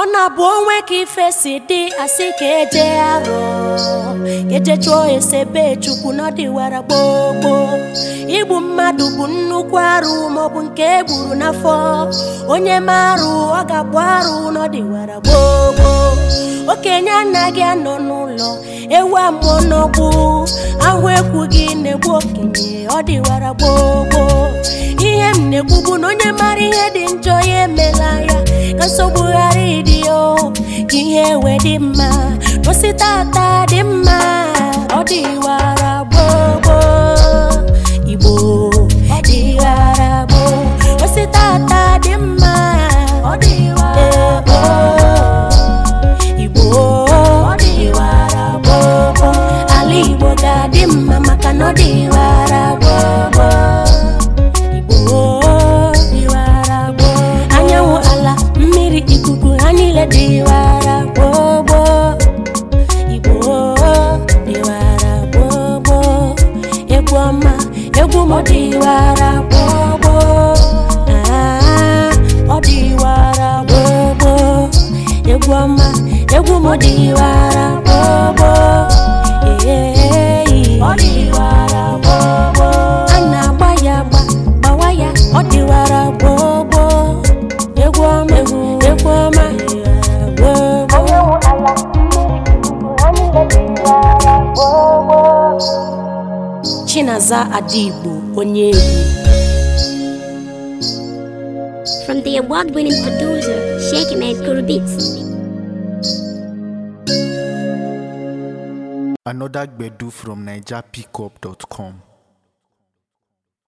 ọ na-abụ onwe ka ife si dị asị ka eje arọ eje chụọ esebe chukwu n'ọdịwara gbogbo igbu mmadụ bụ nnukwu arụ maọbụ nke e gburu n'afọ onye marụ ọ ga-agba arụ n'ọdịwara gbogbo okenye anaghị anọ n'ụlọ ewu amụọ n'ọgbụ ahụ ekwu gị na-egbu okenye ọ gboo gbogbo ihe m na-ekwu bụ na onye mara ihe dị njọ ya emela ya ka nsogbu ghara ịdị o ihe ewe dị mma n'osi tata dị mma ọ dị wara gboo igbo ọ dị wara gboo n'osi tata dị mma ọ dị wara gboo igbo ọ dị wara gboo ala igbo ga-adị mma maka na ọ dị wara gboo Ọ dịwara gbogbo Igbo ah, dịwara gbogbo egwu ọma egwu m dịwara gbogbo ọ dịwara gbogbo egwu ọma egwu m dịwara gbogbo Chinaza Adigbo onye egwu. From the award-winning producer, Sheikh Ahmed Kurubit. Another Gbedu from NigerPickup.com.